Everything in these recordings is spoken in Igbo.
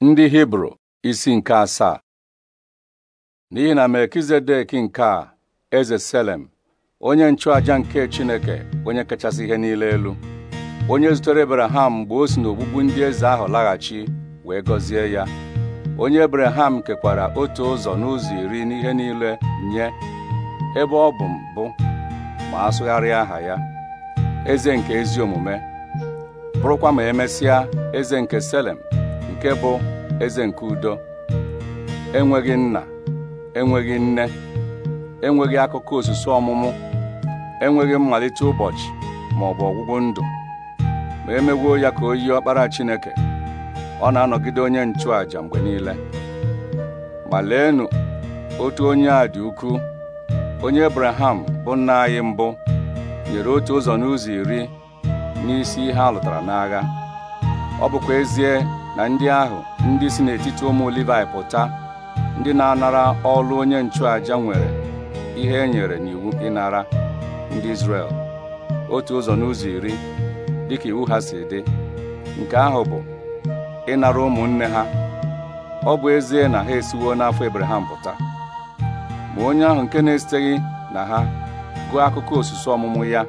ndị hibru isi nke asaa n'ihi na melkizedek nke a eze selem onye nchụàja nke chineke onye kachasị ihe niile elu onye zutere ebraham mgbe o si n'ogbugbu ndị eze ahụ laghachi wee gọzie ya onye ebraham kekwara otu ụzọ n'ụzọ iri n'ihe niile nye ebe ọ bụ mbụ ma asụgharịa aha ya eze nke ezi omume bụrụkwa ma emesịa eze nke selem nke bụ eze nke udo enweghị nna enweghị nne enweghị akụkọ osisi ọmụmụ enweghị mmalite ụbọchị ma ọ bụ ọgwụgwụ ndụ ma emegwuo ya ka o yie ọkpara Chineke ọ na-anọgide onye nchụàja mgbe niile ma leenu otu onye a dị ukwuu onye Abraham bụ nna anyị mbụ nyere otu ụzọ n'ụzọ iri n'isi ihe a lụtara n'agha ọ bụkwa ezie na ndị ahụ ndị si n'etiti ụmụ Livaị pụta ndị na-anara ọlụ onye nchụaja nwere ihe e nyere n'iwu ịnara ndị Izrel otu ụzọ n'ụzọ iri dịka iwu ha si dị nke ahụ bụ ịnara ụmụnne ha ọ bụ ezie na ha esiwo n'afọ Ebreham pụta ma onye ahụ nke na-esiteghị na ha gụọ akụkọ osisi ọmụmụ ya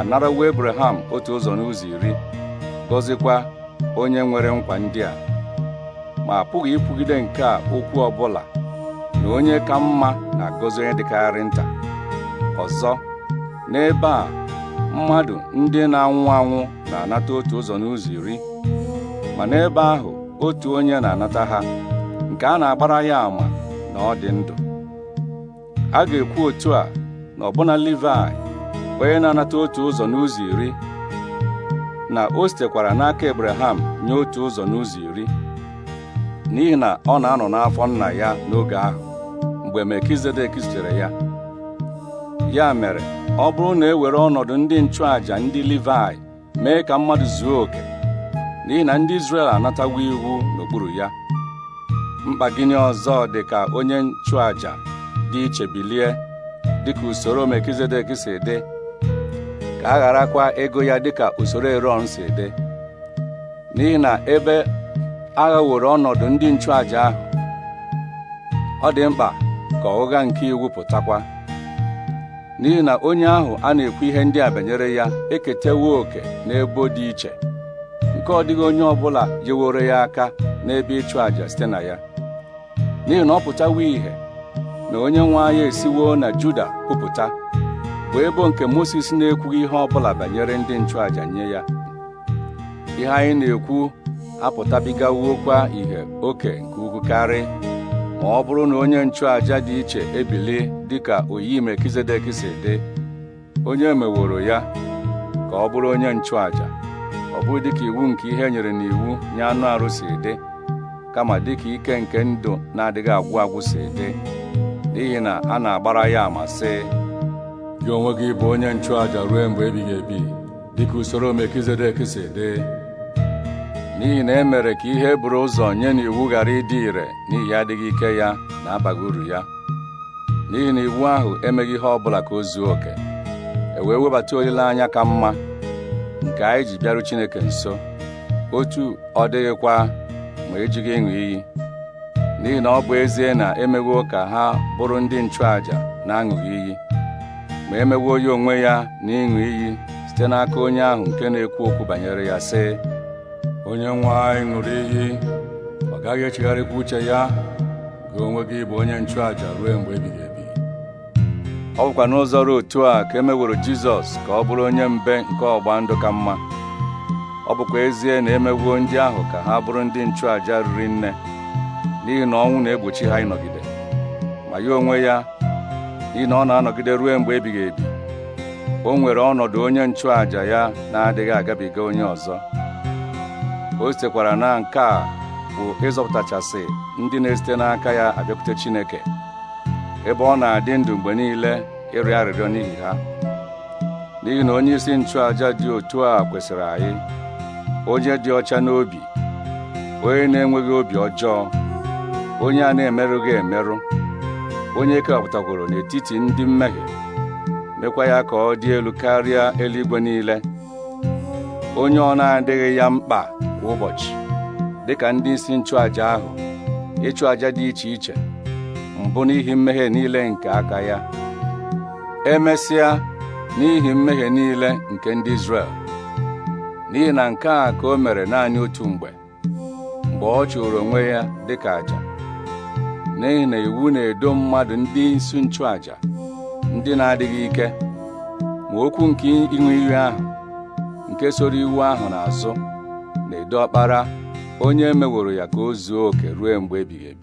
anarawo Ebreham otu ụzọ n'ụzọ iri gọzikwa onye nwere nkwa ndị a ma apụghị ikwugide nke a okwu ọ bụla na onye ka mma na-agọzi onye dịkarị nta ọzọ n'ebe a mmadụ ndị na-anwụ anwụ na-anata otu ụzọ n'ụzọ iri ma n'ebe ahụ otu onye na-anata ha nke a na-agbara ya ama na ọ dị ndụ a ga-ekwu otu a na ọbụna Livai onye na-anata otu ụzọ n'ụzọ iri na o sitekwara n'aka Abraham nye otu ụzọ n'ụzọ iri n'ihi na ọ na-anọ n'afọ nna ya n'oge ahụ mgbe Melkizedek zutere ya ya mere ọ bụrụ na e were ọnọdụ ndị nchụàjà ndị livai mee ka mmadụ zuo oke n'ihi na ndị Izrel anatawo iwu n'okpuru ya mkpa gịnị ọzọ dị ka onye nchụàjà dị iche bilie dịka usoro mekizedek si dị a ego ya dịka usoro eron si dị n'ihi na ebe aghaworo ọnọdụ ndị nchụàja ahụ ọ dị mkpa ka ụgha nke iwu pụtakwa n'ihi na onye ahụ a na-ekwu ihe ndị a banyere ya eketewo oke n'ebo dị iche nke ọ dịghị onye ọbụla jeworo ya aka n'ebe ịchụ àjà site na ya n'ihi na ọ pụtawo ìhè na onye nwe anya esiwo na Juda kwupụta bụ ebo nke Mozis na-ekwughị ihe ọ bụla banyere ndị nchụàja nye ya ihe anyị na-ekwu apụtabigawokwa ihe oke nke ukwu karị ma ọ bụrụ na onye nchụàja dị iche ebili dịka oyi Melkizedek si dị onye meworo ya ka ọ bụrụ onye nchụàja ọ bụghị dịka iwu nke ihe nyere n'iwu nye anụ arụ si dị kama dịka ike nke ndụ na-adịghị agwụ agwụ si dị n'ihi na a na-agbara ya amasị sị gị onwe gị bụ onye nchụàjà ruo mgbe ebighị ebi dịka usoro Melkizedek si dị n'ihi na e mere ka ihe bụrụ ụzọ nye na iwu ghara ịdị ire n'ihi adịghị ike ya na abaghị uru ya n'ihi na iwu ahụ emeghị ihe ọ bụla ka o zuo oke e wee webata olileanya ka mma nke anyị ji bịaru Chineke nso otu ọ dịghịkwa ma ejighị ịṅụ iyi n'ihi na ọ bụ ezie na emewo ka ha bụrụ ndị nchụàja na-aṅụghị iyi ma e onye onwe ya na ịṅụ iyi site n'aka onye ahụ nke na-ekwu okwu banyere ya sị onye nwe anyị ṅụrụ iyi ọ gaghị echegharịkwa uche ya gị onwe gị bụ onye nchụàja ruo mgbe ebighị ebi ọ bụkwa n'ụzọ ruo otu a ka emeworo jizọs ka ọ bụrụ onye mbe nke ọgba ndụ ka mma ọ bụkwa ezie na emewuo ndị ahụ ka ha bụrụ ndị nchụàja riri nne n'ihi na ọnwụ na-egbochi ha ịnọgide ma ya onwe ya n'ihi na ọ na-anọgide ruo mgbe ebighị ebi o nwere ọnọdụ onye nchụàja ya na-adịghị agabiga onye ọzọ o sitekwara na nke a bụ ịzọpụtachasị ndị na-esite n'aka ya abịakwute Chineke ebe ọ na-adị ndụ mgbe niile ịrịọ arịrịọ n'ihi ha n'ihi na onye isi nchụàja dị otu a kwesịrị anyị onye dị ọcha n'obi onye na-enweghị obi ọjọọ onye a na-emerụghị emerụ onye kewapụtagworo n'etiti ndị mmehie mekwa ya ka ọ dị elu karịa eluigwe niile onye ọ na-adịghị ya mkpa kwa ụbọchị ka ndị isi nchụaja ahụ ịchụ aja dị iche iche mbụ n'ihi mmehie niile nke aka ya emesịa n'ihi mmehie niile nke ndị Izrel n'ihi na nke a ka o mere naanị otu mgbe mgbe ọ chụrụ onwe ya dịka àjà. n'ihi na iwu na-edo mmadụ ndị isi nchụàjà ndị na-adịghị ike ma okwu nke ịṅụ iyi ahụ nke soro iwu ahụ n'azụ na-edo ọkpara onye meworo ya ka o zuo oke ruo mgbe ebighị ebi